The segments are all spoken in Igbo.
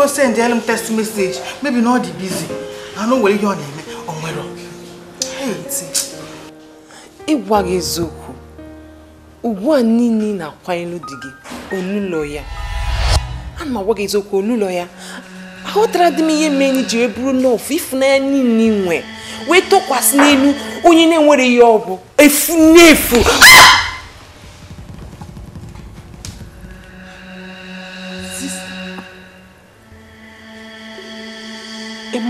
go send m text message maybe na ọ dị busy anụ nwere ihe ọ na-eme ọ nwere ịgwa gị eziokwu ugbu a na-akwanyelu inu gị olụlọ ya ana m eziokwu olụlọ ya dị m ihe mere anyị ji wee bụrụ nọọfụ niile nwe wee tọkwasị n'elu onye na-enwere ya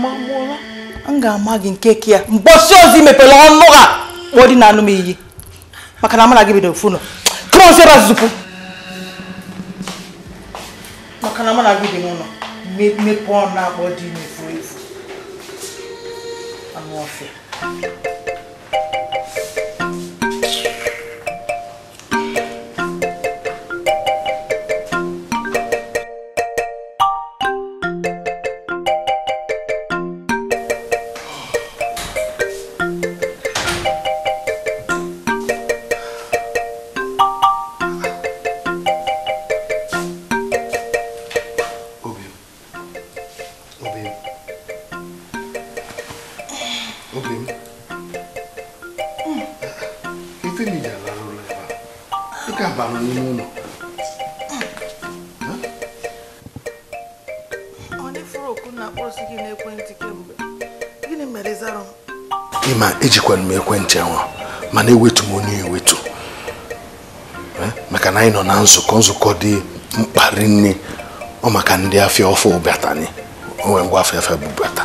magbuola m ga-ama gị nke ke ya mgbosi ozi mepere ọnụ ha kpọọ dị na anụ m iyi maka na amara gị bidoro funu krọs ebe azụpụ maka na amara gị dị n'ụlọ mepee ọnụ akpọ dị n'efu efu anụ ọfịa mana ewetu m onye ewetu eh, maka na anyị nọ na nzukọ nzukọ dị mkpa rinne ọ maka ndị afịa ọfụ bata ni onwe ngwa afịa afịa bubata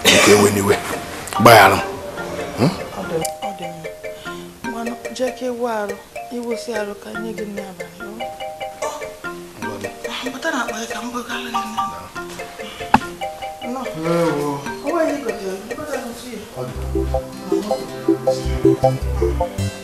nke ewe n'iwe gbaghara m Hello. Hmm? うん。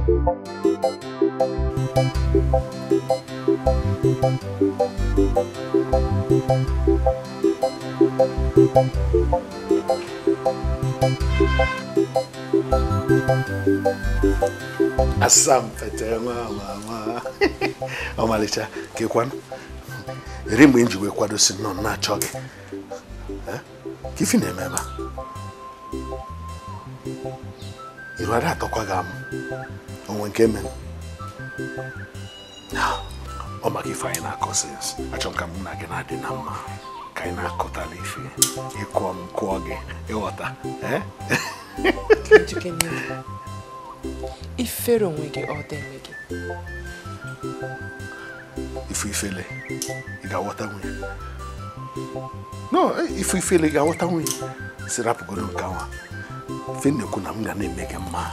asampete nwa mama ọmalịcha ka ịkwanụ eri mgbe m ji wee kwadosi nọ na-achọ gị ka na-eme ebe a iru ada atọkwa gị amụ onwe nke mere ọ maka ife anyị na-akọ sins achọ m ka mụ na gị na-adị na mma ka anyị na-akọtala ife ịkụọ m kụọ gị ịghọta ifere onwe gị ọ dị onwe gị ife ifele ị ga-aghọta nwunye no eh, ife ifele ị ga-aghọta nwunye si nke nwa ife na-ekwu na m ga na-eme gị mma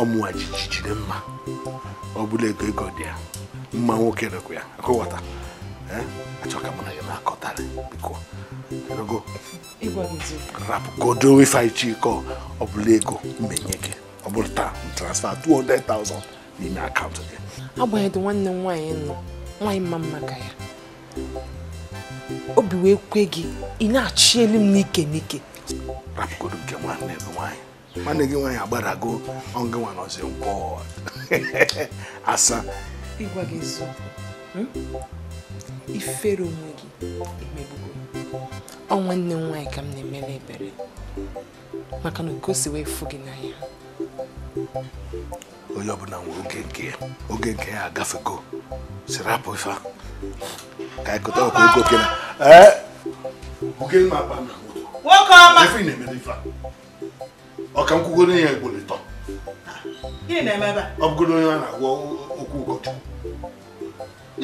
ọmụwa jijijide mma ọ bụla ego ego dị ya mma nwoke rekwa ya akụghọta Eh? achọka m na ya na-akọtara biko rapụgodo ife anyị chikọ ọ bụla ego mmenye gị ọ bụrụ taa transfer 200,000 n'ime akaụntụ gị agbanyeghị nwanne m nwaanyị nọ nwaanyị mma mma ka ya obi wee kwe gị ị na-achị elu m n'ike n'ike rapụgodo nke nwanne gị nwaanyị nwanne gị nwaanyị agbarago ọngị nwa nọzi nkwọ asa ịgwa gị ifere onwe gị emegbugo ọ nwanne m nwaanyị ka m na-emere ebere maka na oke si wee fụ gị n'anya onye ọbụla nwere oge nke ya oge nke ya agafego siri apụ ife ka ịkọta ọkụ ego oke na nwoke na ọka a na-agwọ okwu ụkọchukwu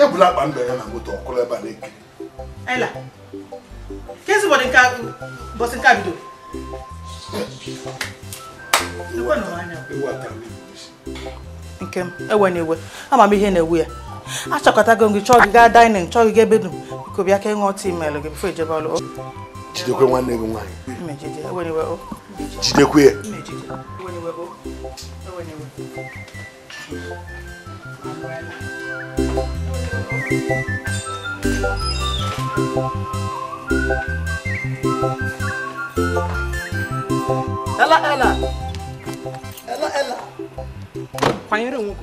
ya bụla akpa ndụ ya na moto ọkụrụ ebe a na eke Ayla, kezi ụbọchị nke nke m ewe na ewe ama m ihe na-ewu ya achọkọtago gị chọọ gị gaa dainin chọọ gị ebe dum biko bịa ka ịṅụọ tii maịlụ gị bifo ijebe ọlụ jidekwe nwanne gị nwaanyị jidekwe ya Thank you. Ela, ela! Ela, Kwanyere onwe gị ugwu.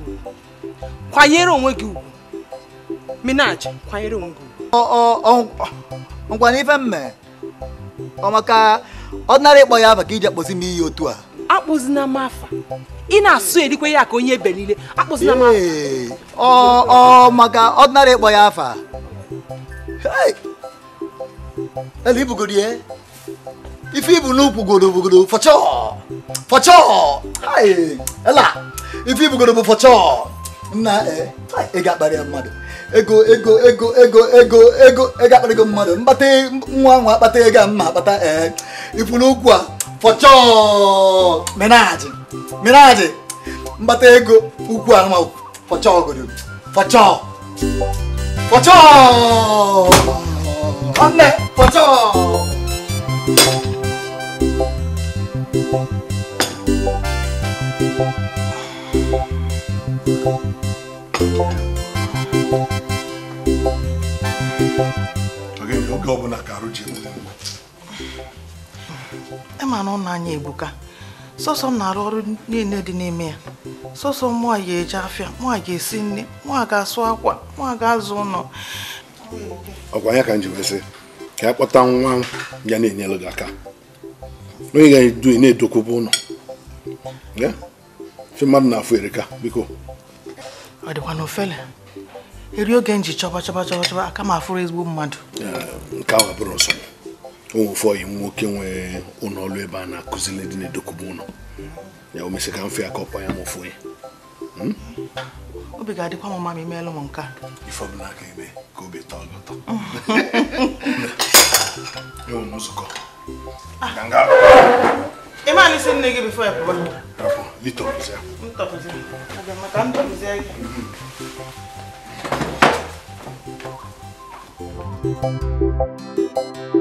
Kwanyere onwe gị ugwu. Minaj, kwanyere onwe gị ugwu. Ngwa n'ife mme, ọ maka ọ nara ịkpọ ya maka iji kpọzi m iyi otu a. akpụzina m afa ị na-asụ erikwe ya ka onye ebe niile akpụzina m afa ọ maka ọdịnala ịkpọ ya afa ele ibugoro ya ife ibu n'ukwu goro bugoro fọchọ fọchọ ela ife ibugoro bụ fọchọ nna e, ị ga-akparị ya mmadụ ego ego ego ego ego ego ego akparịgo mmadụ mkpata nwa nwa akpata ego a mma akpata ee ifu n'ukwu a fọchọọ menajị menajị mbata ego ukwu anụma fọchọọ ogodo fọchọọ fọchọọ nwanne fọchọọ oge ọbụla ka arụ ji E ma na ọ na-anya ebuka sọsọ m na-arụ ọrụ niile dị n'ime ya sọsọ mụa ga-eje afịa mụa ga-esi nri mụa ga-asụ akwa mụa ga-azụ ụlọ ọkwa ya ka m ji wesị ka ya kpọta nwa ya na-enyelụ gị aka onye ga-edu na-edokwube ụlọ fe mmadụ na-afụ erika biko ọ dịkwa na ofele eri oge nji chọba chọba chọba chọba aka m afụrụ ezigbo mmadụ eh, nke ahụ abụrụ nsọ onwefe oyi nwoke nwee ụlọ ọrụ ebe a na-akụziri ndị na-edokụba ụlọ ya o mesị ka mfe ya ka ọkpa ya ma ofu obi ga-adịkwa m mma ma imeelụ m nke a ife ka ebe ka obi tọọ gị ụtọ m nzukọ ah. nne gị bifo ya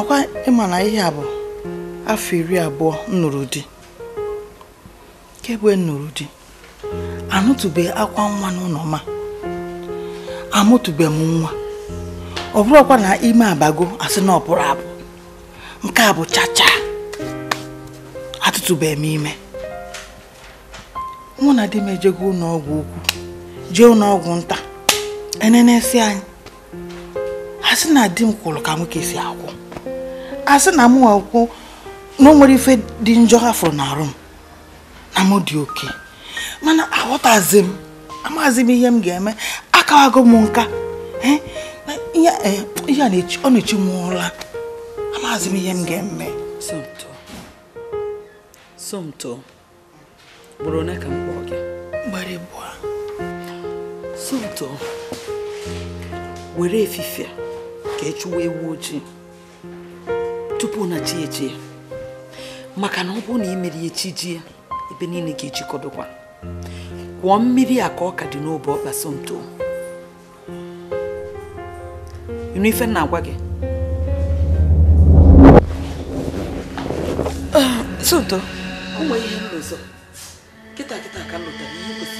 ọkwa ịma na ihe a bụ afọ iri abụọ nnụrụ di kemgbe nnụrụ di anụtụbe akwa nwa n'ụlọ ma amụtụbe m nwa ọ bụrụkwa na ime abago asị na ọ abụ nke a bụ chacha atụtụbe m ime mụ na di m ejego ụlọ ọgwụ ukwu jee ụlọọgwụ nta enenesi anyị asị na di m kwụrụ ka nwoke si akwụ asị na m nwekwụ na nwere ife dị njọ afụrụ n'arụ m na m dị oke mana aghọtazi m m ihe m ga-eme akawago m nka ihe e, ọ na-echi m ụra amazi m ihe m ga-eme somto bụrụ ka m kpọọ gị ọsụ ụtọ were efifie ka ị e ewu ojii tupu na chi eji ya maka na ọ bụrụ na i mere ya chi ji ya ebe niile ga-ejikọdụkwa kwụọ mmiri a ka ọ ka dị n'obe ọkpa somto ife na-agwa gị ah, somto o nwere ihe m na-ezo kịta kịta ka m lụtara ihe kwesịrị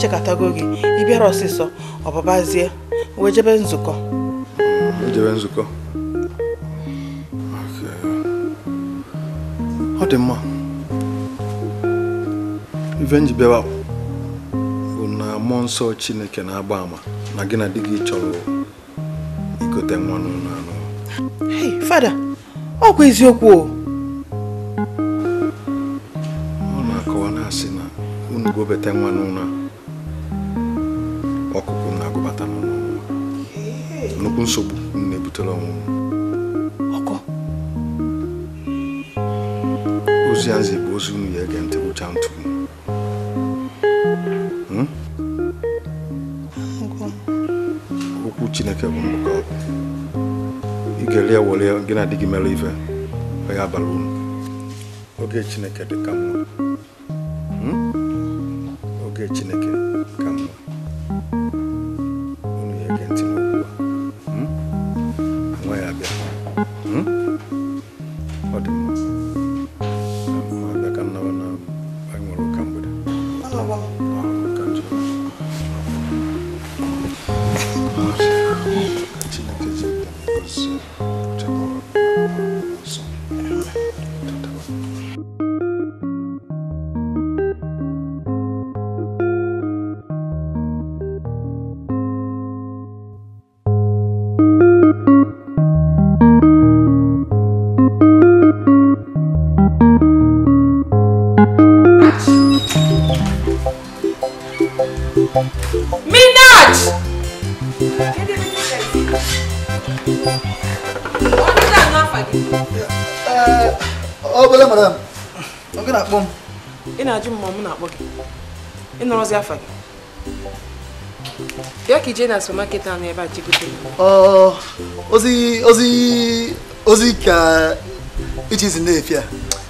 echekatago gị ịbịara ọsịsọ ọbụbazie wee nzukọ jebe nzukọ ọ dị mma ife m bịawa bụ na mmụọ nsọ chineke na-agba ama na gị na di gị chọrọ igote nwa n'ụlọ fada ọ bụ eziokwu o ọ na-akọwa na asị na unu gobete nwa gị na di gị mere ife ọ ya bara oge chineke dị ka mma hmm? oge chineke ka mma unu ya ntị a hmm? nwa ya abịa hmm? ọ dị ka nnawa na anyị nwere mgbede ị nọrọzi afa gị bịa ka ije na supermarket ahụ ebe a jigote ozi ozi ozi ka ichizi na-efi a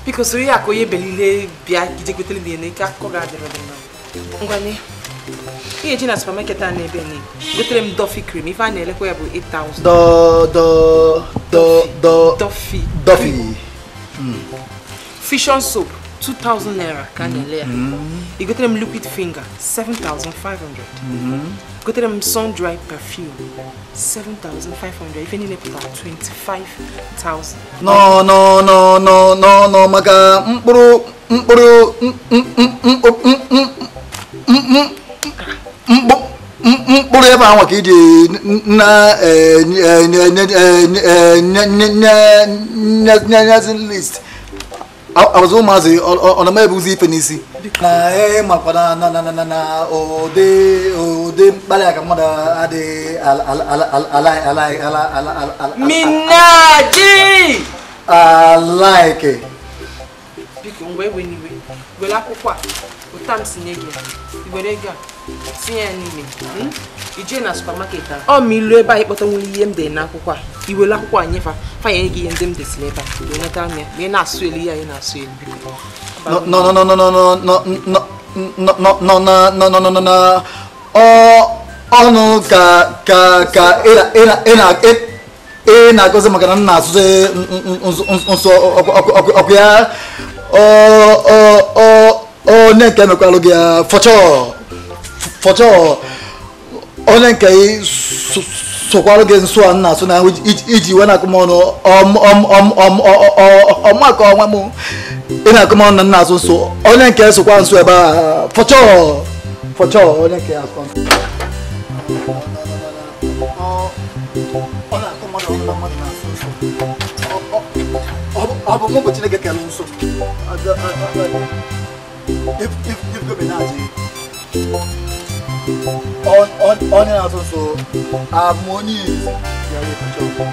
biko soro ya ka onye belile bịa ijegotere na ene ka akụkọ ga-adịrị dị mma ngwanye ihe ji na supermarket a na-ebe ne gotere m dofi cream ife a na-elekwa ya bụ 8000 dofi dofi fusion soap 2,000 naira kanelea. Mm -hmm. Igotere them liquid finger, seven thousand 7,500. Mm -hmm. Igotere them sun dry perfume, seven thousand five hundred. 7,500. Ife niile pụtara 25,000. No, no, no, no, no, no, maka mkpụrụ mkpụrụ mkpụrụ ebe ahụ ka iji na nyezi list. abụzụ ụmụazị ọ na ebuzi ife n'isi na makwa na ụdị mkpali aka mmadụ adịghị minaji alaike biko mgbe ewe n'iwe were akwụkwọ a m a n'ime ije na supamaket a ọ ma ilu ebe anyị ịkpọta nwere ihe m dị n'akwụkwọ a ka i anyị akwụkwọ fa ya fanye gị ihe ndị m desịrị ebe a nweta anya ma ị na-asụ elu ihe anyị na-asụ elu ọnụ ka ka ka ị na-agọzi maka na m na-asụ nsọ ọkụ ya onye nke emekwalụ gị ya fọchọ fọchọ onye nke sokwarụ gị nsọ nna asụ na iji iwe na-akụ m ọnụ ọmụaka ọnwa m ị na-akụ m ọnụ na nna asụ nso onye nke sokwa nso ebe a fọchọ fọchọ onye nke akọ ọ bụ mụ bụ chineke kere nso if if if go be na aja onion and also harmony is your picture.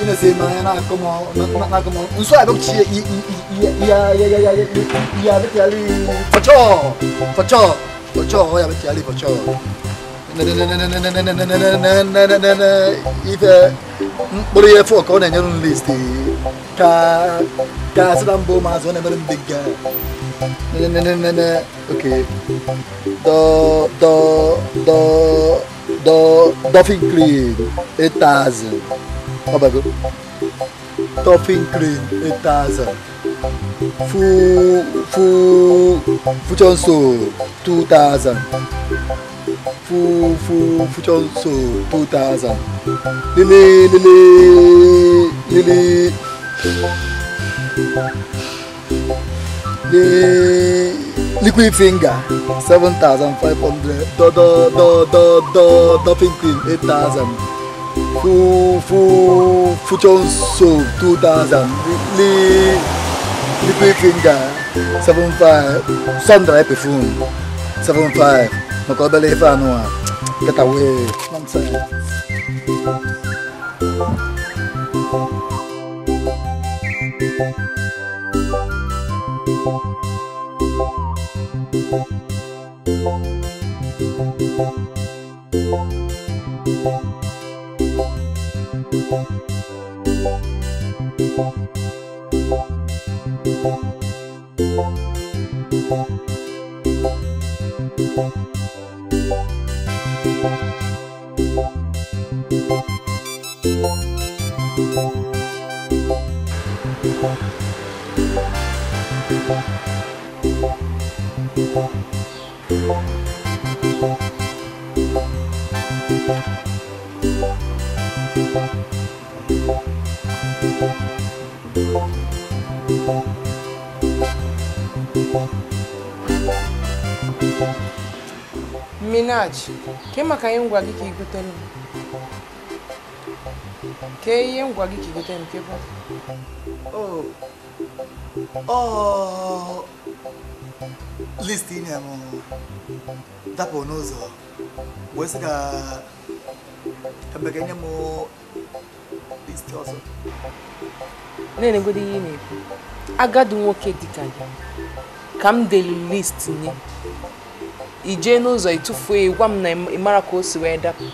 ina sai ma yana kuma na kuma in so abin ci ya ya ya ya ya bi tali facho facho facho ya bi tali facho na na na na na na na na na na na na na na na mkpụrụ ihe efu ka ka ka sị na mba ụmụazị ọ na-emere m do do do do dolphin cream 8000 ọbago dolphin clean 8000 fu fu fuchonso 2000 for for future so two thousand lele lele lele le liquid finger seven thousand five hundred do do do do do dolphin cream eight thousand for for future so two thousand le liquid finger seven five sundial perfume seven five. Kau balik pa ano ah. Thank you. Música Minaj, ke makayengwa kiki kutenu. Ke yengwa kiki kutenu que pa. Oh. Oh. Listini amo. bom, nozo. Wesika kabegenya mo listi ọzọ. Na-enegodi ihe ị na-ekwu. Agadi nwoke dịka de ka m delụ listi nye. i jee n'ụzọ ịtụfuo ya gwa m na ị mara ka o si wee dapụ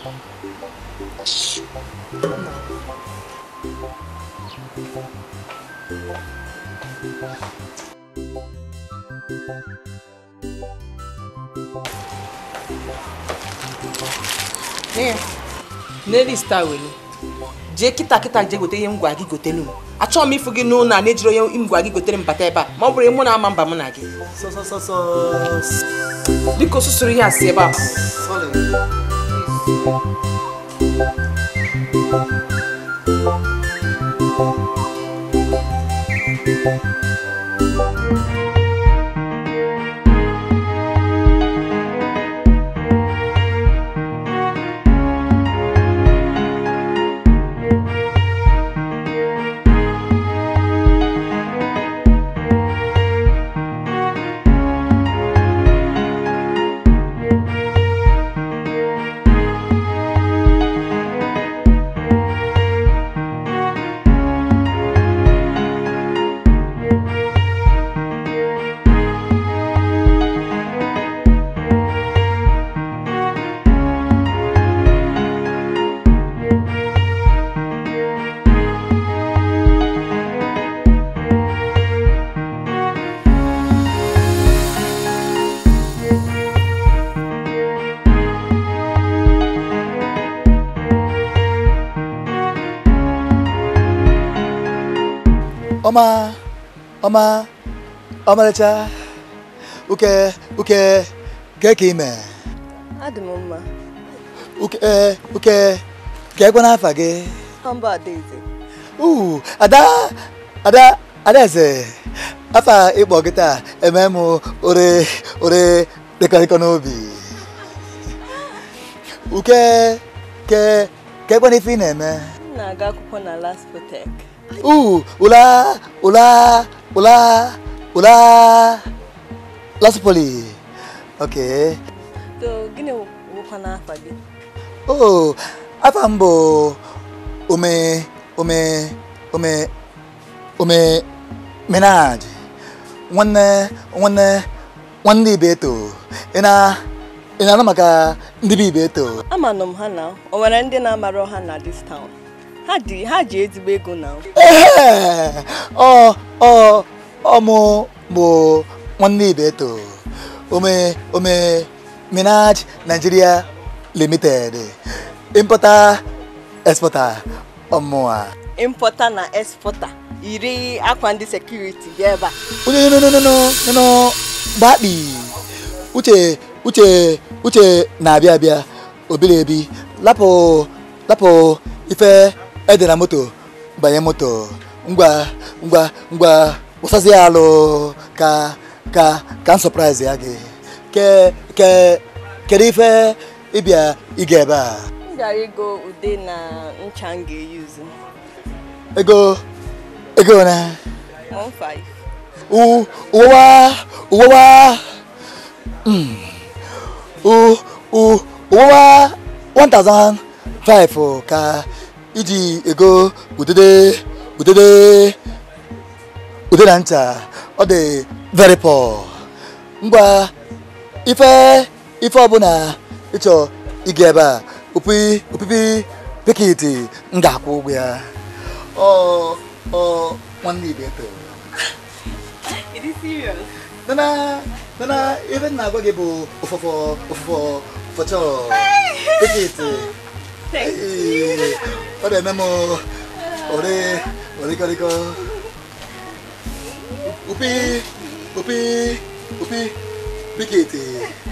n'elu ista were jee kịta kịta jee gote ihe m gwa gị gotelu m achọghị m ịfụ gị n'ụlọ a na-ejiri onye ngwa gị gotere mbata ebe a ma ọ bụrụ mụ na ama mba mụ na gị dịka osusuru ihe asị ebe a Thank you. ọma ọmarịcha uke uke gee ka ime adị m mma uke eh, uke geekwa n'afa gị mba adaeze uu ada ada adaeze afa ịkpọ gị taa eme m ore ore dịkọrịkọ n'obi uke ke keekwa ife ị na-eme m na-aga akwụkwọ na last tek. Uh, ula, ula, ula. hola. Lasipoli. Okay. To gini wuko na afa bi. Oh, afa mbo ome ome ome ome menaj. Nwanne nwanne nwanne ibe to. Ina ina na maka ndị ibe to. Amanụ m ha na o nwere ndị na-amara ọha na this town. ha ji ezigbo ego na ọmụ bụ nwanne ibe to ome ome minaj nigeria limited importer exporter ọmụa importer na exporter iri akwa ndị sekuriti dị ebe a onye no gbakpi uche uche uche na-abịa abịa obiri ebi lapụ lapụ ife ede na moto banye moto ngwa ngwa ngwa ụsazi ya alụ ka ka ka m sọpraịz ya gị ke ke kedu ife ịbịa ịga ebe a m gara ego ude na ncha m ga-eyuzu ego ego na uwa uwewa uwewa uwewa 1005 ka iji ego udede udede ude na ncha ọ dị very poor ngwa ife ife ọbụla ịchọ ịga ebe a opi opipi pikiti m ga-akwụ ụgwọ ya ọ ọ nwanne ibe eto nana nana ife na agwa gị bụ ụfọfọ ụfọfọ fọchọ pikiti 哎，快来那么，我的，我的，我的哥，乌皮，乌皮，乌皮，皮皮。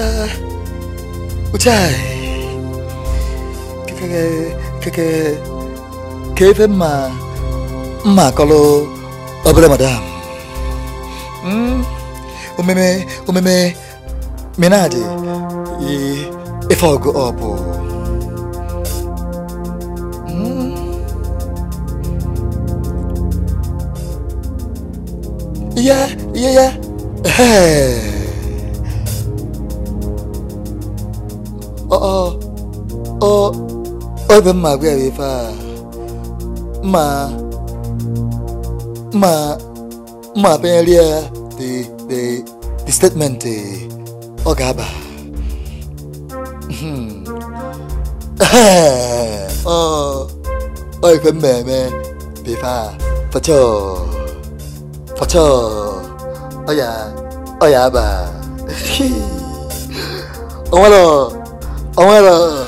mucha, mucha, que, madam. Mm, obo. yeah, yeah. Hey. alvin ma gbe ri fa ma ma ma pe ri the the the statement ọ ga-aba ọ ọ ife mmemme bifa fọchọ fọchọ ọ ya ọ ya aba ọ ơi, ọ ơi.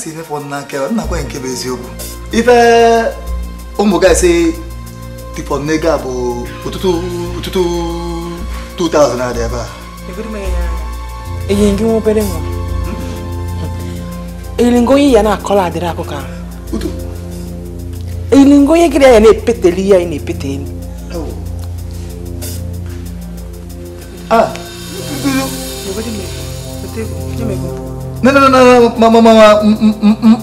si ife fọrọ n'aka ya nna kwa nke bụ eziokwu ife ụmụ gaasị dịfọrọ n'ego a bụ ụtụtụ ụtụtụ 2000 na-adị ebe a enyere gị nwa obere nwa hmm? eyilingo onye ya na-akọla adịrị akụkọ ahụ eyilingo onye gịrị ya na-epeteli ihe anyị na pete elu Ah, tudo, tudo. Eu vou de medo. Eu tenho, eu tenho non non non ma ma ma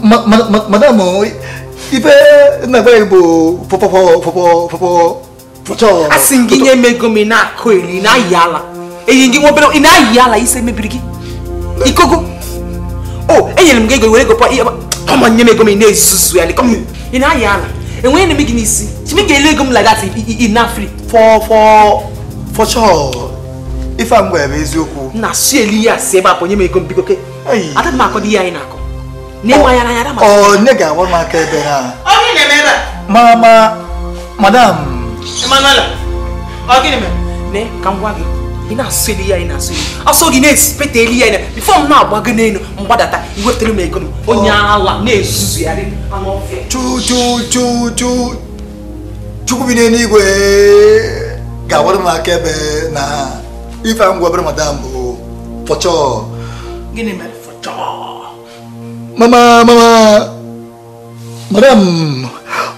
ma ma ma madame ife nagba igbo pọpọpọpọpọpọ pọchọ asị gị nye mego m ị na-akụ eri ị na-ayị ala eyi gị nwa obere ị na-ayị ala ise mebiri gị ikogo o enyere m gị ego were ego kọma nye m nye m ị na-ezuzu ya ị na-ayị ala enweghị na gị n'isi chimi ga-ele ego m lagat inafri fọchọ ife a mgbe bụ eziokwu na si eli ya si ebe a pụ nye m ego m ada m akọ ihe anyị na-akọ n'ịma ya n'anya oh. ma oh, ga m aka ebe ha na ma madam ọ ne ka m gwa gị ị na-asụ elu ya ị na-asụ gị na-esipeta elu ya ị bifo m na-agba gị n'elu mgbadata m ego m oh. onye na-ezuzu ya chukwu bi n'eluigwe ga-agwara m aka ebe na ife a m madam bụ pọchọ gịnị Mama, mama, madam,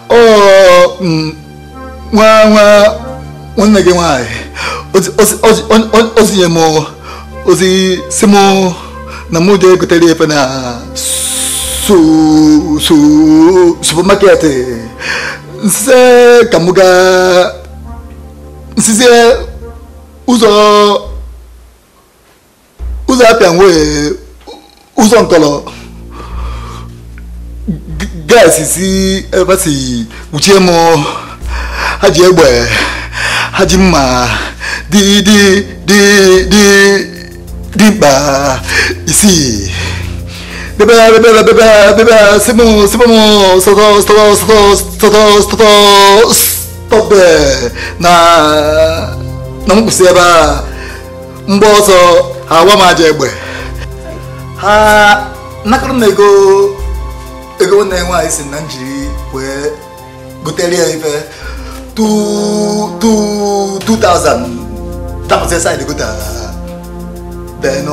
oh, mm, wah, wah, wọ́n nàgé wọn àyè ó sì yẹ mọ́ ó sì sí mọ́ na mú jẹ́ kòtẹ́lẹ̀ ẹ̀fẹ́ náà so so supermarket nsẹ́ kàmúgà nsísẹ́ ụzọ ụzọ apịa nwee 우선걸어 가스시 에바시 우체모 하지 에버에 하지마 디디 디디 디바 이시 bébé bébé bébé bébé c'est bon c'est bon stop stop stop stop stop stop na na mo kù sí ẹ bá ń bọ́ sọ àwa máa jẹ ẹgbẹ́ ha nakọrọ m ego ego nne nwaanyị si na njiri wee gotere ya ife 2000 dapụta saịdị gota then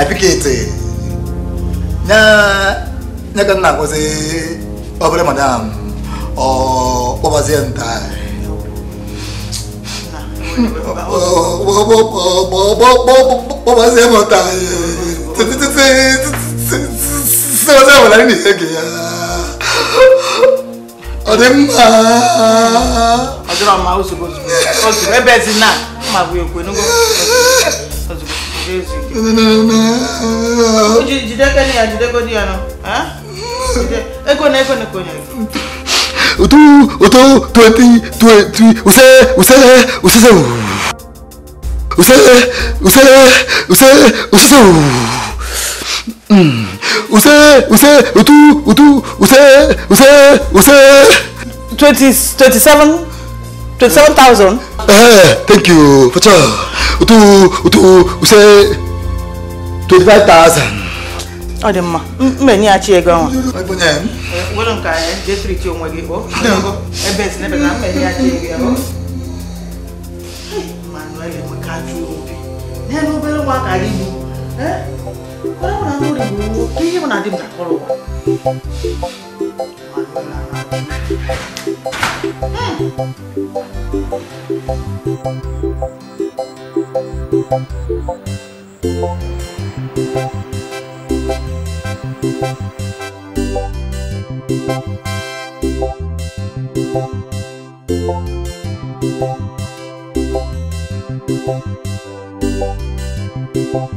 apiketi nya ka nna agwazi obere madam ọ kpọbazie nta kpọbazie m sẹ́wọ́sẹ́ wà láyé nìyẹn gẹ̀yà ọ̀dẹ mma. ọjọ́ ọmọ àwọn oṣù bọ̀sù oṣù ẹbẹ̀ ẹ̀sìn náà wọ́n máa fi òkú enúgbọ́ jideke ni ya jideko di ya no ego na ego ni konya otu otu twenty twenty use use use use use use use use use mm. use utu utu use use use. twenty twenty seven twenty seven thousand. eh thank you focha utu utu use twenty five thousand. ọ dị mma mbe nye ya chi ego ọnwa. nwere nke anyị jesiri chi onwe gị kpọọ ebe esi n'ebe na mbe nye ya chi ego ya ọ. manuel enwe ka ajụ obi n'elu obere nwa ka anyị bụ. Eh? 그러면 그 안 그리고 뒤집어 놔주면 다 걸고 u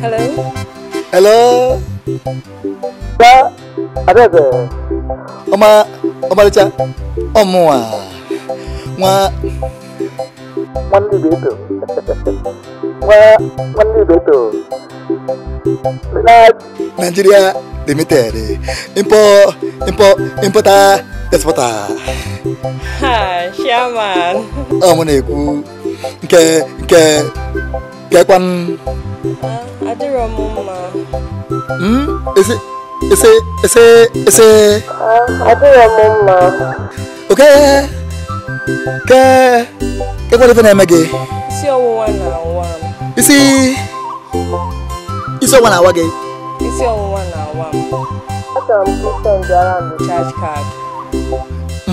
Hello. Hello. Ba abẹ́bẹ̀. Ọmọ ọmọlẹ́cha ọmọ wa wọn. Wọ́n ní ìbí ètò. Wọ́n wọ́n ní ìbí ètò. Nigeria Limited import import importer exporter ha chairman ọ m na-ekwu nke nke nke kwan adịrọ m mma ese ese ese ese adịrọ m mma oke ke ke kwalife na-eme gị isi ọwụwa na-awa m isi isi ọwụwa na-awa gị isi ọwụwa na-awa m achọrọ m kripto njara m bụ charge card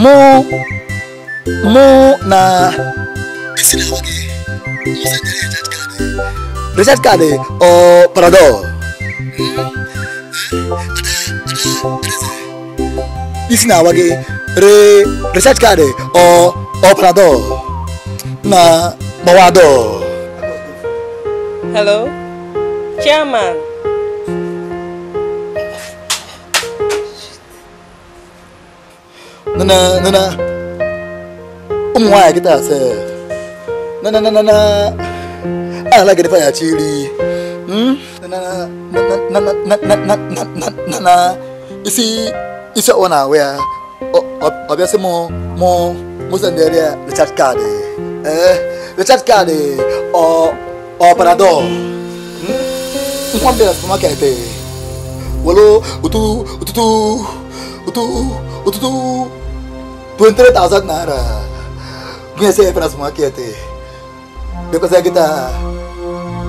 mu mu na reset card eh? eh? or paradol isi na awa re reset card eh? or or paradol na gbawa dol hello chairman nana nana ụmụ nwaanyị kịta ase nana nana na ala gị fanya chiri nana isi isi ọwa na-ahụ ya ọbịa sị mụ mụ mụsa ndị ya richard kaadị ee richard kaadị ọ ọ paradol nkwọ mbịa na supamaket welo ụtụtụ ụtụtụ ụtụtụ ụtụtụ पंचवीस तावजात ना रा गुंयसे हे प्रास माके ते बेको से किता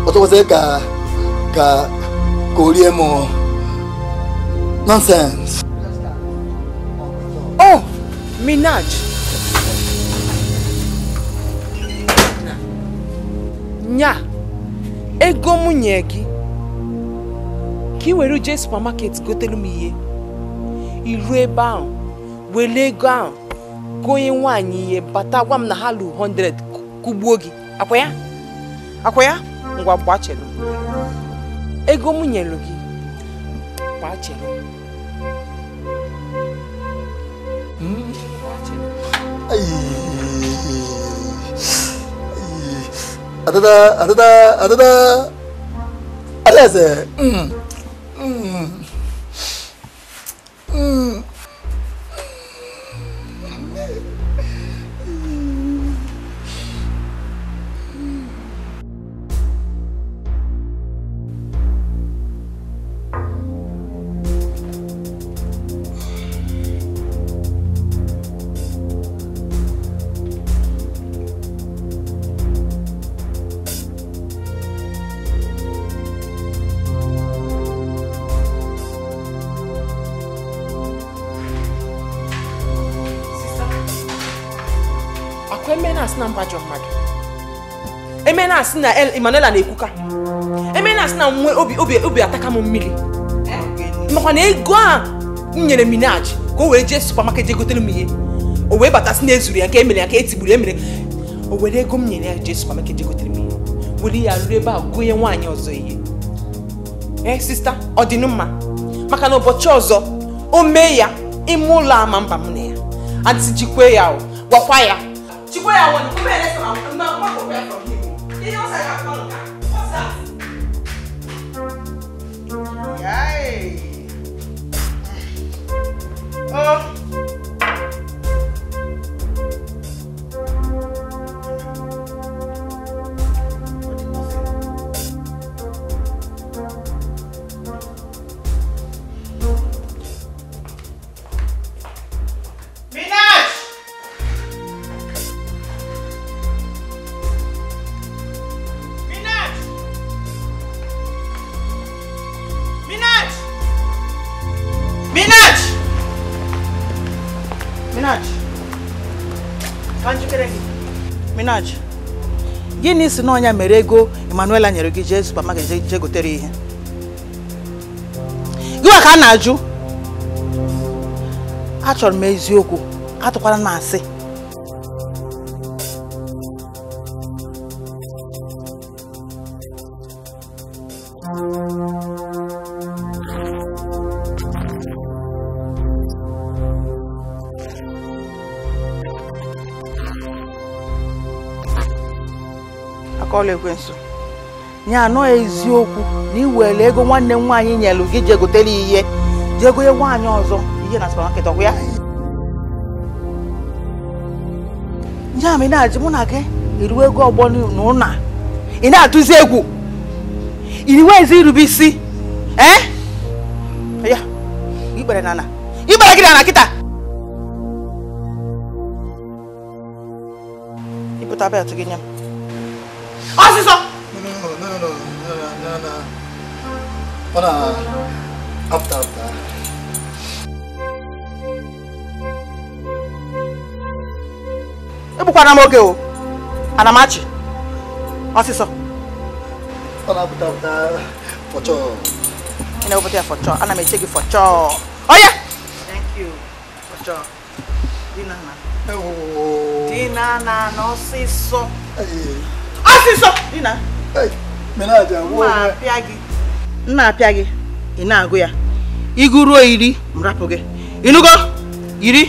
ओतो से का का कोलिए मो nonsense oh minaj nya ego m nye gị ka ị were jee supamaket gotelu m ihe iruo ebe onye nwaanyị ihe bata gwa m na ha lụ 100 kụgbuo gị akwa ya akwa ya ngwa gbachelu ego m nyelu gị gbachelu adada adada adada alaeze na-asị na na-ekwuka eme na-asị na nwe obi ataka m mmiri makwa na ego a m nyere minaj ka o wee jee supamaket jee gotere m ihe o wee batasị na ezuru ya nke emere ya ka etigburu emere o were ego m nyere ya jee supamaket jee gotere m ihe were ya ruru ebe a gụnye nwaanyị ọzọ ihe ee eh, sista ọ maka na ụbọchị ọzọ o mee ya ime ụlọ ama mba m na ya jikwe ya gwakwa ya ya Oh. gịnị si n'ọnya mere ego emmanuela nyere gị jee supermarket jee gotere ihe gịwa ka a na-ajụ achọrọ m eziokwu atụkwala m asị ọlụ ekwensu ya anọ eziokwu na iwere ego nwanne m nwaanyị nyelụ gị jee gotere ihe jee gonye nwaanyị ọzọ ihe na supamaketị ọgwụ ya ya ma ị na-ajụ mụ na gị iruwe ego ọgbọ na ụna ị na-atụzi egwu iriwe ezi irube isi ee eh? ya ikpere na na ikpere gị na na kịta ịpụta belt gị nye m ọ sì sọ. ọ̀nà after after. ebukwana m oge o anamachi ọsịsọ ọ na-apụta apụta fọchọ ị na-ewepụta ya fọchọ ana m eche gị fọchọ oye thank you fọchọ dinana dinana n'ọsịsọ ọsịsọ nna apịa gị ị na-agụ ya ịgụ ruo iri m rapụ gị ịnụgo iri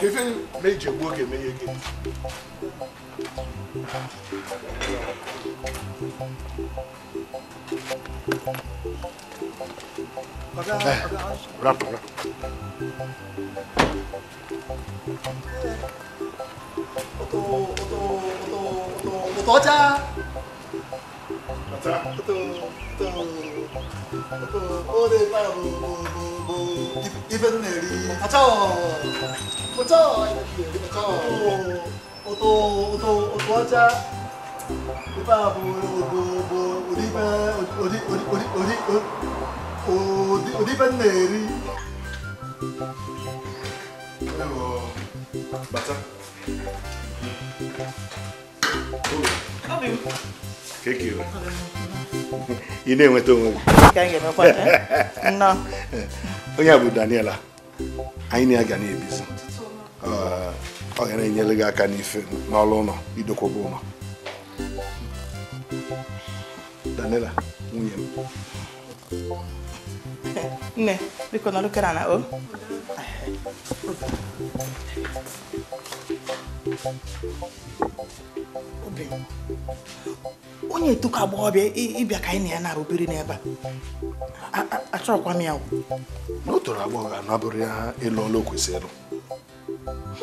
Kevin méje gboge meye gị Rapụ rapụ Oto oto oto oto oto ọcha Oto oto oto 그 어디 가라 뭐뭐뭐 이번 내리 가자 가자 이렇게 가자 어도어도어도 하자 이봐 뭐뭐뭐 우리 반 어디 어디 어디 어디 어디 어디 어반 내리 그리고 맞자 오. 아 매우 개기요. ị na-enweta onwe gị onye a bụ Daniela anyị na-aga na-ebizi ọ ga na-enyere gị aka n'ife n'ọlụ ụlọ idokwaba ụlọ Daniela nwunye m nne biko nọdụ kere na o obi onye etuka agbọghọbịa ịbịa ka anyị na ya na-arụbiri n'ebe a achọrọkwa m ya na o toro agbọghọ anabụrụ ya ịlụ ọlụ kwesịrị ịlụ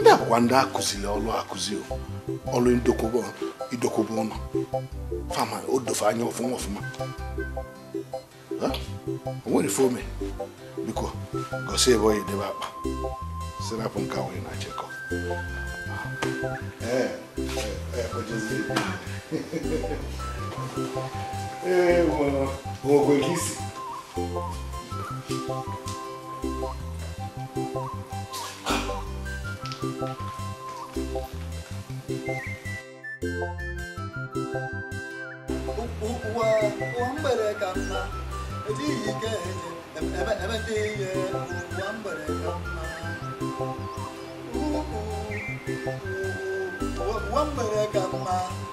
ndị akwụkwa ndị akụziri ọlụ akụzi ọlụ idokwuba ụlọ fama odofe anya ọfụma ọfụma o nwere fome biko gosi ebe onye debe akpa sirapụ nke awụghị na chekọ ee ee É, mano. Rogo aqui. Wambere kama, ejiyi keje, ebe ebe tiye, wambere kama.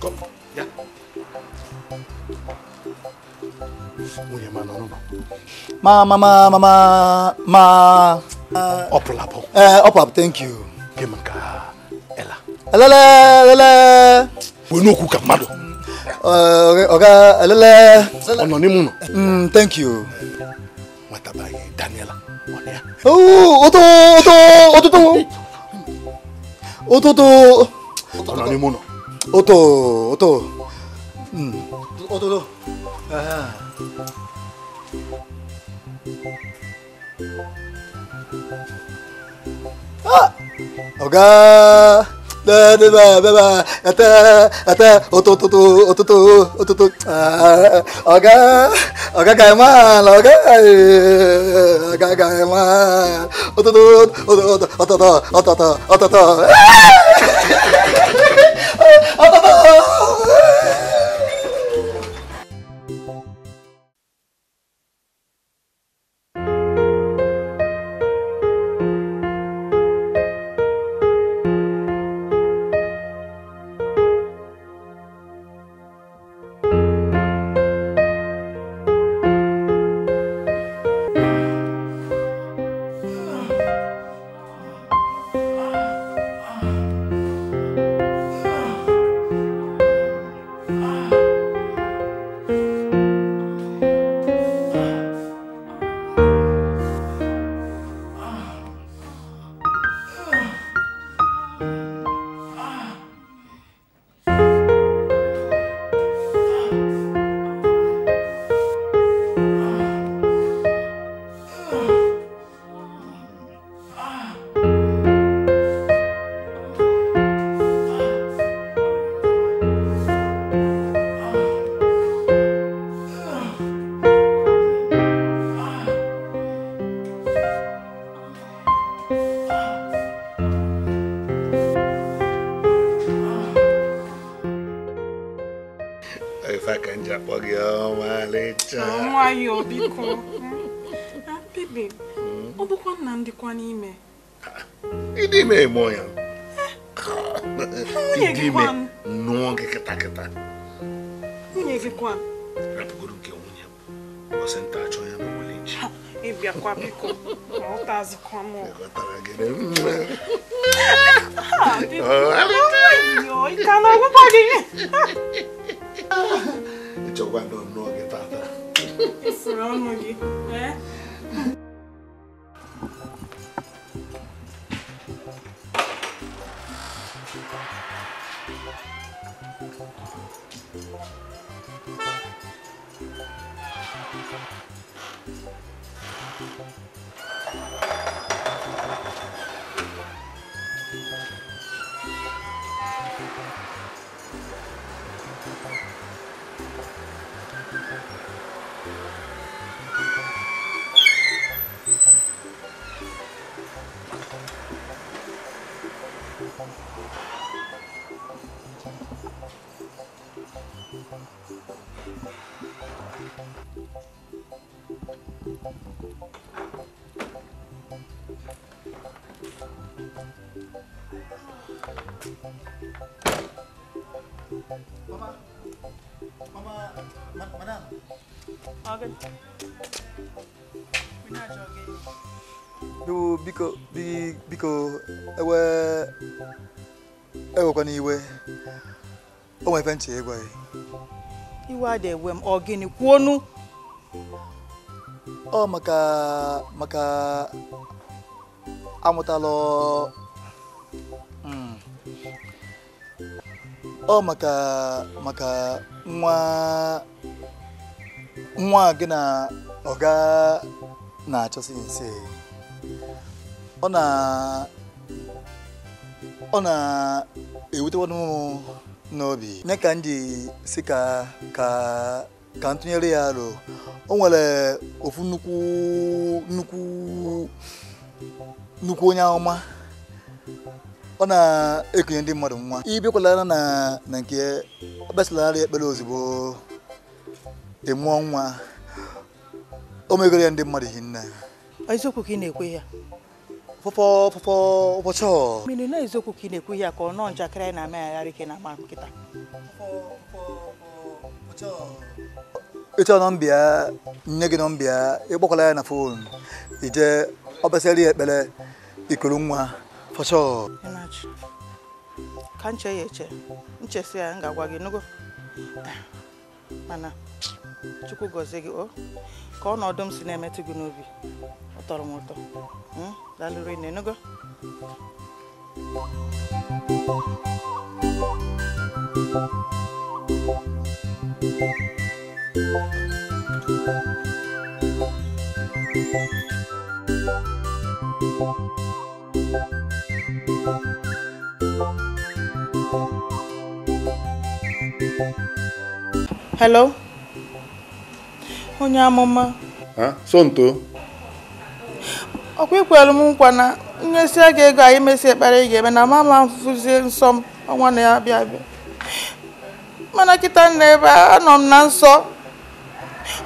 Kom. Ja. Moet je maar naar Ma, ma, ma, ma, ma, ma. Uh, oplapo. Eh, uh, up. thank you. ka Ella. Elele, elele. We no cook a mado. Uh, okay, elele. Ono ni muno. Mm, thank you. What about Daniela. おお、音、音、音と。音と。何者。音、音。うん。音と。ああ。あ。おかー。Da da da da! Oto oto oto ẹtẹ òtòtòtò òtòtò òtòtò ọ̀gá ọ̀gá ga ẹ̀ oto lọ oto oto oto ẹ̀ oto òtòtò oto òtòtò oto òtòtò. biko biko ewe ewekwana iwe o nwere ebe ntị ịgwa gị e. iwe a dị ewe m ọ gịnị kwuonu ọ maka maka amụtala hmm, ọ maka maka nwa nwa gị na ọga na-achọsi nse ọ na ewute m n'obi nye ka ndị si ka ntụnyere ya aro o nwere ofu nnukwu nnukwu nnukwu onye ọma ọ na-ekunye ndị mmadụ nwa ibikwalana na na nke ekpesalarị ekpere ozugbo ịmụọ e nwa o megoro ya ndị mmadụ hinne eziokwu ka ị na-ekwe ya pụpọ pụpọ ụbọchị ọ na-eziokwu ka ị na-ekwu ihe ka ọ nọọ njakịrị anyị na ike na ama nkịta ịchọ nọmbịa nne gị nọmbịa ịkpọkwala ya na fon ije ọbasịrị ya ekpere ikuru nwa ka nche ya eche nchesi ya ngagwa gị nugo mana chukwu gọzie gị o ka si na-emetụ gị n'obi ọ tọrọ m ụtọ hmm? lalurin na go. Hello? Onye amụma? Ha? So nto? ọkwa ikwelu m nkwa na nyesia aga ego anyị mesi ekpere ị ga-eme na mama m fụzie nsọ m ọnwa na-abịa abịa mana kịta nna ebe anọ m na nsọ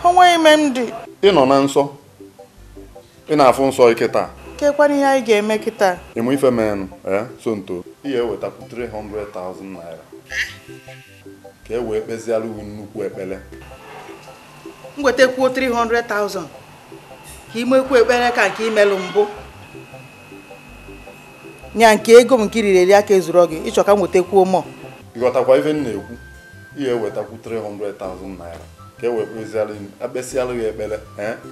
onwe ime m dị ị nọ na nsọ ị na-afụ nsọ ike taa kekwana ihe anyị ga-eme kịta ịmụ ife menụ ee so nto ị ga-ewetakwu 300,000 naira ka e wee kpeziara uwe nnukwu ekpele m wetakwu 300,000 ka ị ekpere ka nke imelụ mbụ nya nke ego m nke riri eri aka ezuru gị ịchọ ka m nwetakwuo mọ ịghọtakwa ife m na-ekwu ihe ewetakwu 300,000 naira ka e wekpezialụ akpesịalụ gị ekpere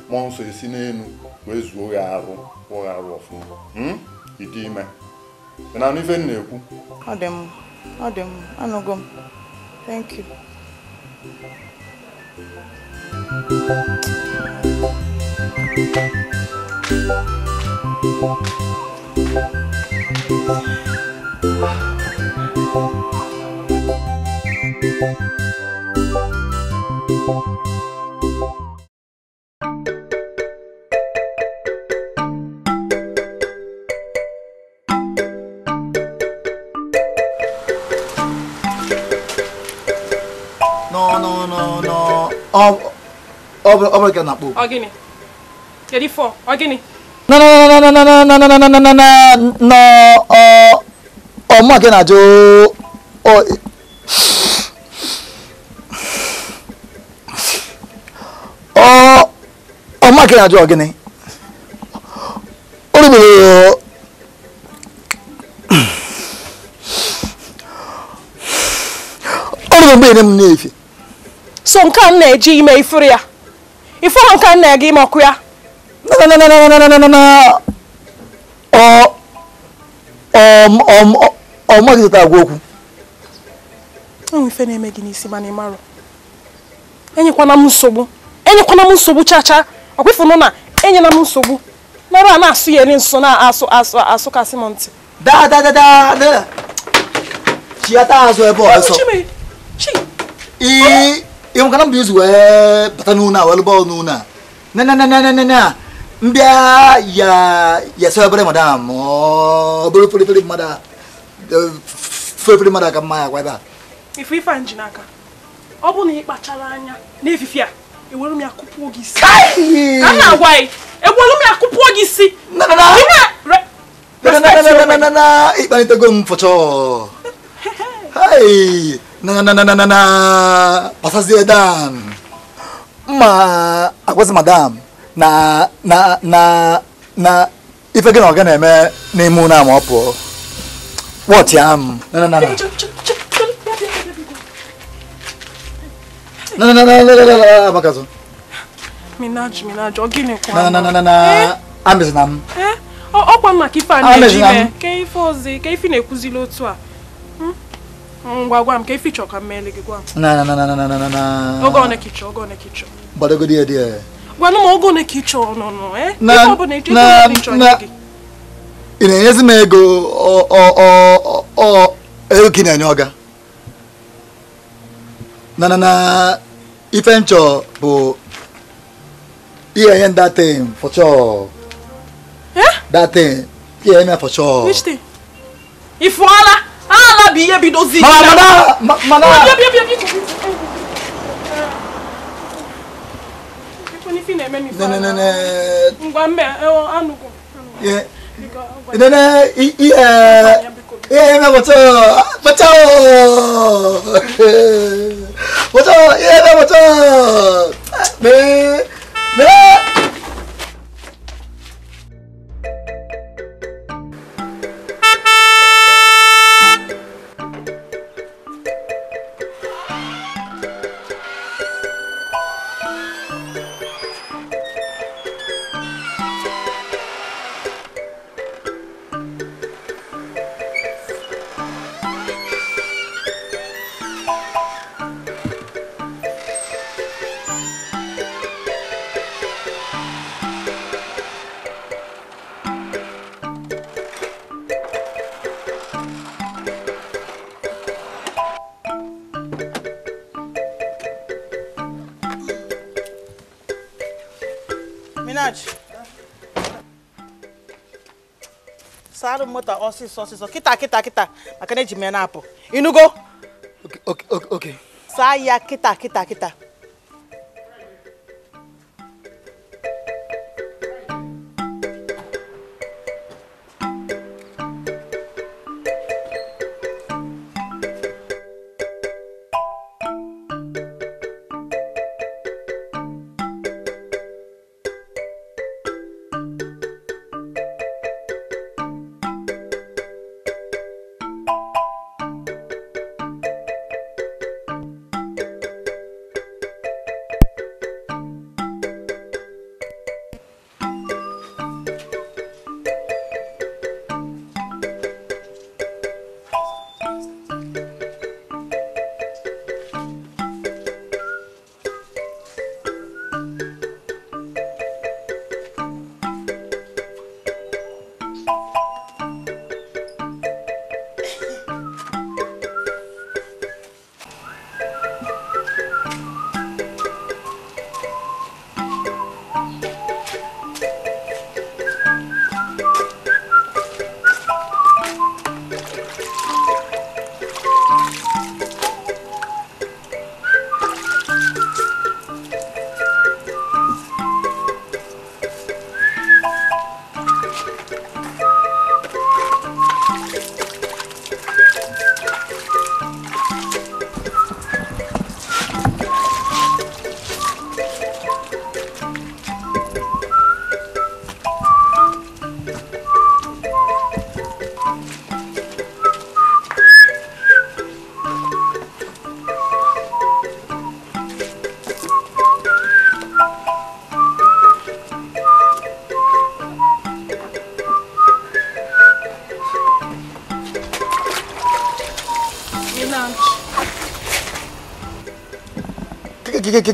mmụọ eh, nsọ esi n'elu wee zuo gị arụ kwụọ gị arụ ọfụma hmm? ịdị ime na ife m na-ekwu ọ dị m ọ dị m anụgo m thank you No, no, no, no. Ọ bụrụ Oh, na-akpọ. Ọ gịnị? Kedu Oh, Ọ gịnị? no no no no no no no no no no no no no no no ọmọ akẹ́nà àjò ọmọ akẹ́nà àjò ọ̀gẹ́ni olùbẹ̀rẹ̀ olùbẹ̀rẹ̀ bẹ́ẹ̀ ni mo ní èyí fi. so nǹkan náà ẹ jí ime ìfúri ya ìfúra nǹkan náà ẹ gí ime ọkụ ya. no, no, no, no, no, no, no, no, no. Ọ ọ ọ okwu. na-eme gị n'isi mana ị marọ. Enyekwana m nsogbu. Enyekwana m nsogbu chacha. Ọkwịfụnụ na enyela m nsogbu. Nara a na-asụ ya nso na-asụ asụ asụkasị m ntị. Da da da da da. azụ ebe ọ ọsọ. Ị mbịa ya yasa obere madam obere felefele mmadụ felefele mmadụ aka mma ya gwa ebe a ife ife nji n'aka ọ bụ na ị kpachara anya n'efife a ewere m ya kụpụọ gị isi ka m na-agwa gị ewere m ya kụpụọ gị isi ịkpanitego m fọchọ pasazie dan ma agwazi madam na na na na ife gị na ọ ga na-eme n'ime ụlọ ama ọ pụọ wọtị am amezina m ọkwa maka ife a na-eji mee ka ife ozi ka ife na-ekwuzili otu a ngwa gwa m ka ife chọọ ka m meele gị gwa m oge ọ na-ekichọ oge ọ na-ekichọ gbadogodi ya di ya gwanụ m ogo ole ka ị chọrọ ị na-enyezi m ego ego ka ị na-enye ọga na na na ife nchọ bụ ihe nye that datin ihe nye for sure ala bụ ihe bidozi mana mana ife na-eme n'ife no no no no ngwa mbe anụgụ nene ihe ihe mepụta pụta pụta ihe mepụta mee mee moto ọsịsọ ọsịsọ kịta kịta kịta maka na eji m ya na-apụ ịnụgo saa ya kịta kịta kịta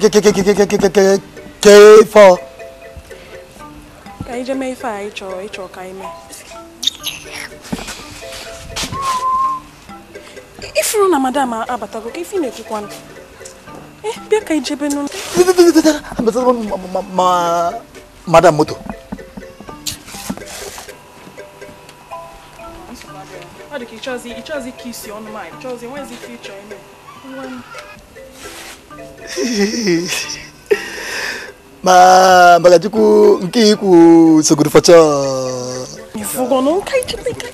K for ka anyị jee mee ife anyị chọrọ ịchọ ka anyị mee ifuru na madam abatago ka ife na-ekwukwa ndụ bịa ka ijebe nụ madam moto ọ dị ka ịchọzi ịchọzi ka isi ọnụ ma ịchọzi enwezi ife ịchọ ma magatiku nkiku seguru foco vugo nunca itipika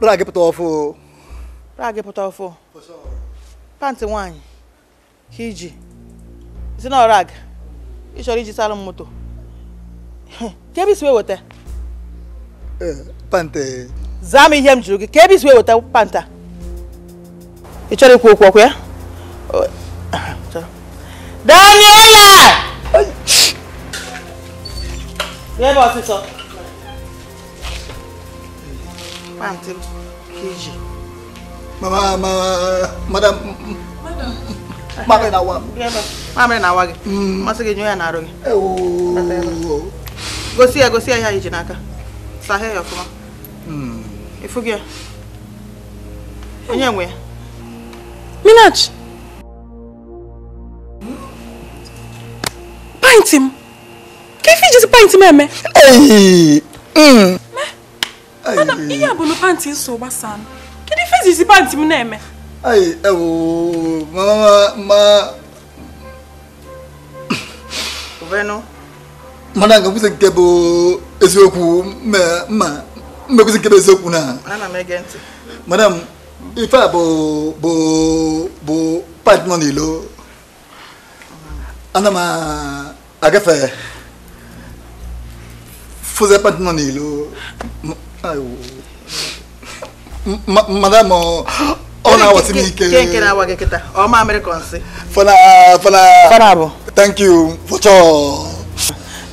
Brage potofu. Brage potofu. Panti wanyi. Hiji. Is it not rag? ị chọrọ iji sara m moto ka ebe isi wee weta panta zaa m ihe m jụrụ gị ka ebe isi wee weta panta ị chọrọ ikwu okwu ọkụ ya Daniela bịa ebe ọsịsọ pantị m ka iji mama mama madam madam na wa bịa ebe mamịrị na awa gị mm, masị gị nyụọ ya na arụ gị gosi ya gosi ya ihe iji n'aka sahee ya ọfụma hmm. ịfụ gị ya onye nwe ya minach pint m ka ife ijizi pint m eme hmm. ihe a bụ na pantị nso gbasaa m kedu ife ijizi pantị m na-eme ma ma Madame, vous êtes beau, et c'est beau, mais vous êtes beau, vous beau. Madame, il faut beau, beau, beau, pas de monde. Anna, ma, à café. Faisait pas de monde. Madame,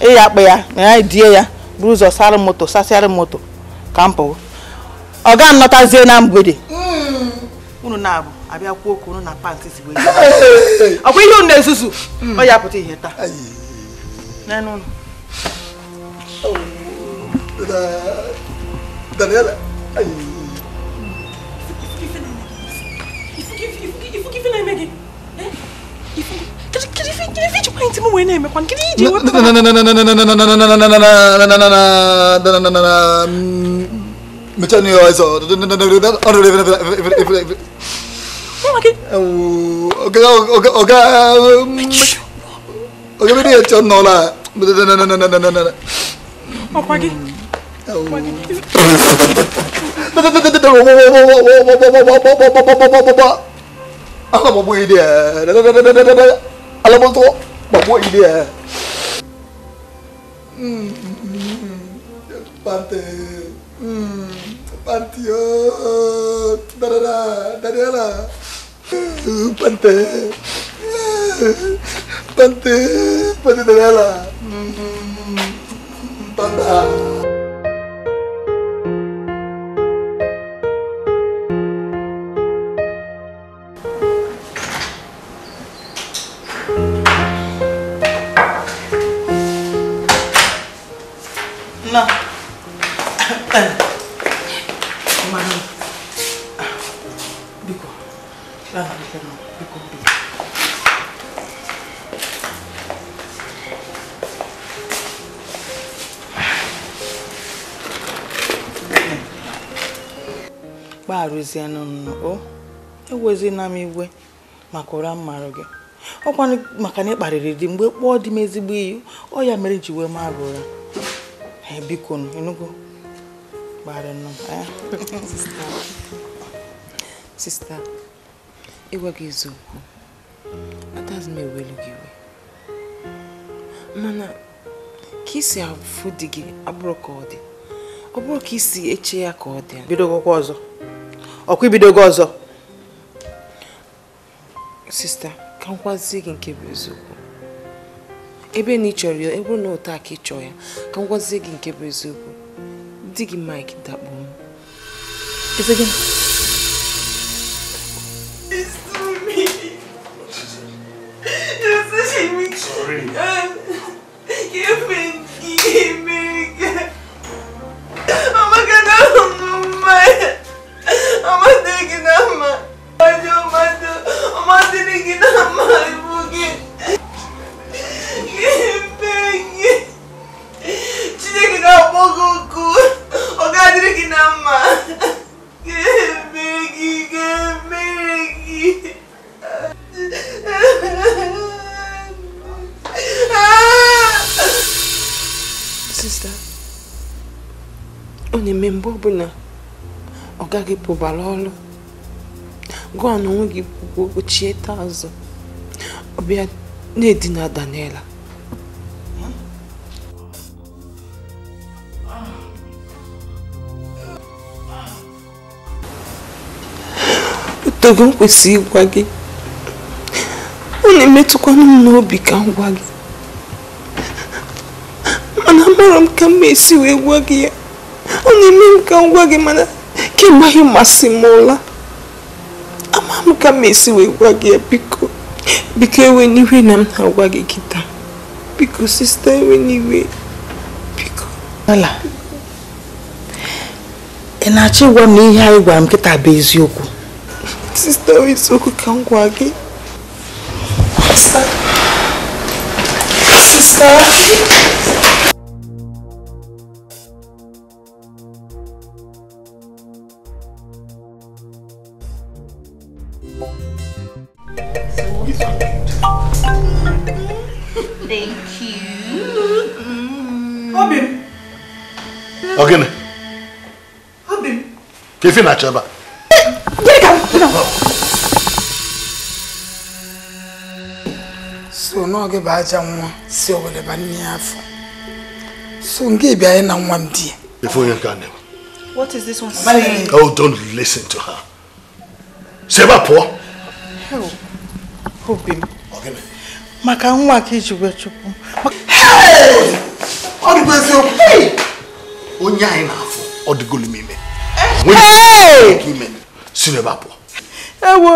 ịya akpa ya ya die ya buru ụzọ sara moto sasịara moto ka m pụọ ọ ga na mgbede hmm. unu na-abụ abịa kwuo okwu unu na pantị si wee ọkwa ihe unu na-ezuzu hmm. ọ ya pụta ihe taa oh. Daniela, forgiving him again? Eh? You forgive? Kiri fi kiri fi chukwa intimu wene me kwan kiri je wa. Na na na na na na na na na na na na na na na na na na na na Mechani yo eso. Oga oga oga oga mi ni echo no la. Na na na na na na na na. Okwagi. Okwagi. Ba ba ba ba ba ba ba ba ba ba ba ba ba ba ba ba Allah mau buat dia. Allah mau tuh mau buat dia. Hmm, pante, hmm, pante yo, dari lah, dari lah, pante, pante, pante hmm, hmm, hmm. pante. ewezienụ o ewezina m igwe maka ụra mmarụ gị ọkwa maka na ị kparịrị di mgbe kpọọ dị m ezigbo iyi ọ ya mere ji wee mara ụra biko enugo gbarịnụ eh? sista ịgwa gị eziokwu atazi m ewelu gị iwe mana ka isi afụ di gị abụrụ ka ọ dị ọ bụrụ ka isi eche ya ka ọ dị bido akwụkwọ ọzọ ọkwa ibidogo ọzọ sista ka nkwazi gị nke bụ eziokwu ebe na ị chọrọ ya ebe na ụta ka ị chọọ ya ka nkwazi gị nke bụ eziokwu di gị mik dakpo m Sorry. give me ọ na-eme mgbe ọbụla ọ gaghị pụbara ọrụ gụọ na onwe gị kwuo ochie taa azụ ọ bịa na-edina Daniela togo m kwesị ịgwa gị ọ na-emetụkwanụ m n'obi ka m gwa gị mana amaara m ka m esi wee gwa gị ya na-eme m ka ngwa gị mana kemgbe anyị masị m ụla ama m ka m esi wee gwa gị ya biko biko ewe n'iwe na m na-agwa gị kita biko sista ewe n'iwe biko ala ị na-achọ ịgwa m na ihe anyị gwara m kịta bụ eziokwu sista eziokwu ka m gwa gị ife na-achọ ebe so n'oge bụ aja nwa si owere ba nne ya afọ so nke bịa anyị e na nwa m di ya What is this one saying? Oh, don't listen to her. Si ebe a pụọ. Obi m. Maka nwa ka iji wee chụpụ. Ọ dịgo eziokwu. Onye anyị na-afụ ọ dịgolu m ime. àwọn èèyàn kí mẹ sínú ẹ bá bọ. ẹ wo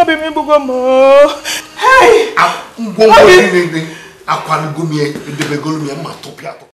ọbẹ mi gbogbo mọ ọ. àwọn ohun ọ̀gbìn rẹ̀ akọ alugbomi ẹ ẹdẹgbẹgọlùmí ẹ máa tó bí àtọ.